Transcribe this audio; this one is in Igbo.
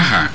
aha